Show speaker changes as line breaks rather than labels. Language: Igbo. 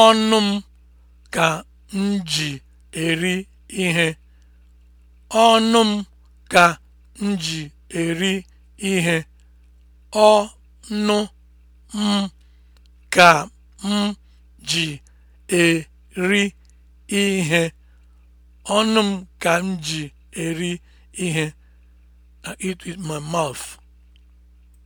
Ọnụ m ka m ji eri ihe. Ọnụ m ka m ji eri ihe. Ọnụ m ka m ji eri ihe. Ọnụ m ka m ji eri ihe. I eat with my mouth.